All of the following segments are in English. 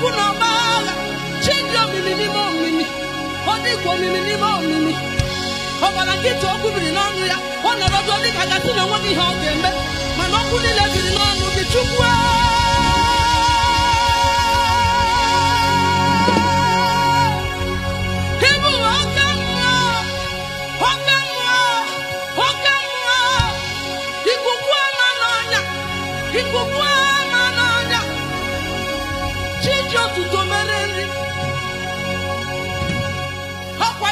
Oku na Chinjo mimi ni mimi. hodi ko mimi ni mimi. Ọbara kịta okwu biri n'ọnụ ya. Ọ nọrọ ọdụ ọ na nwa gị ihe ọ ga-eme. na okwu niile biri chi ji otuto mere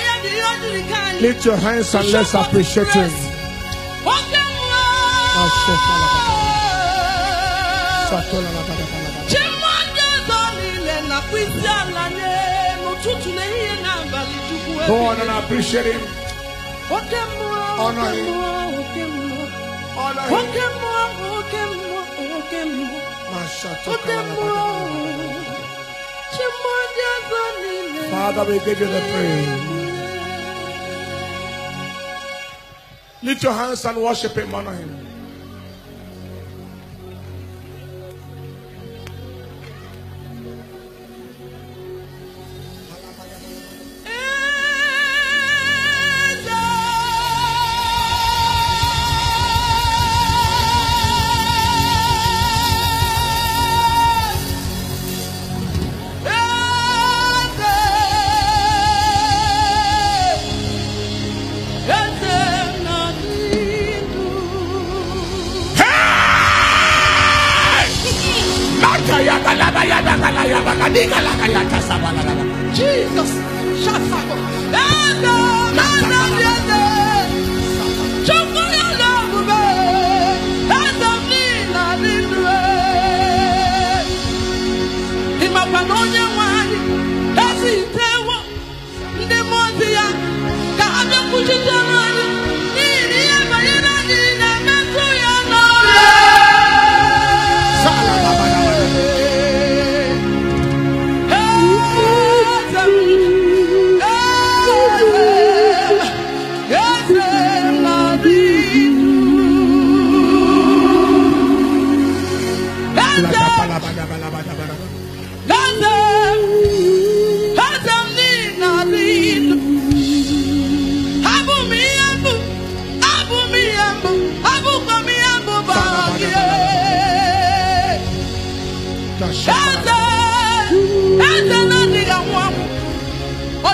ya dị ihe lift your hands and let's appreciate him oke nwa chi mmadụ edo niile nakwa isi ala n'ụtụtụ na ehihie na abalị chukwu ebe oke mmụọ oke mmụọ oke mmụọ oke mmụọ Father, we give you the praise. Lift your hands and worship Him, honor Him. Jesus. Shut up.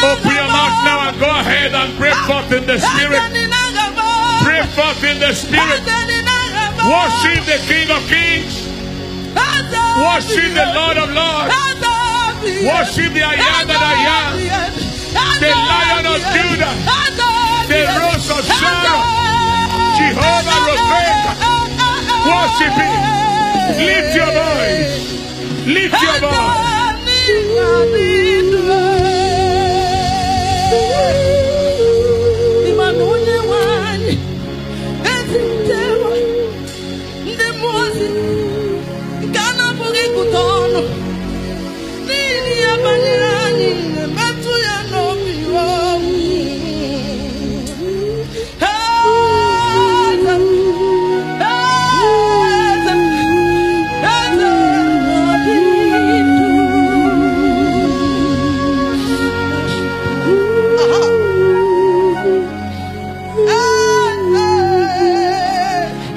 Open your mouth now and go ahead and pray forth in the Spirit. Pray forth in the Spirit. Worship the King of Kings. Worship the Lord of Lords. Worship the I am that I am. The Lion of Judah. The Rose of Sharon. Jehovah Rebecca. Worship Him. Lift your voice. Lift your voice. Yeah.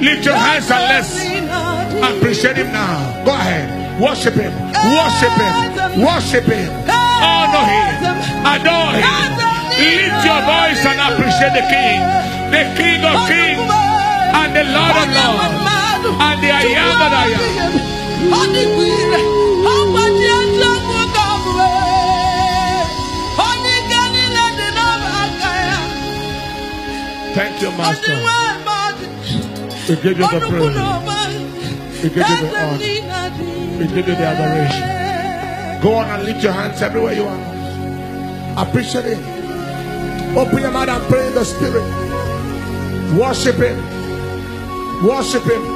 Lift your hands and let's appreciate him now. Go ahead. Worship him. Worship him. Worship him. Honor him. Adore him. Lift your voice and appreciate the King. The King of Kings and the Lord of Lords. And the I am that I am. Thank you, Master. We give you the praise. We give you the honor. We give you the adoration. Go on and lift your hands everywhere you are. Appreciate it. Open your mouth and pray in the spirit. Worship him. Worship him.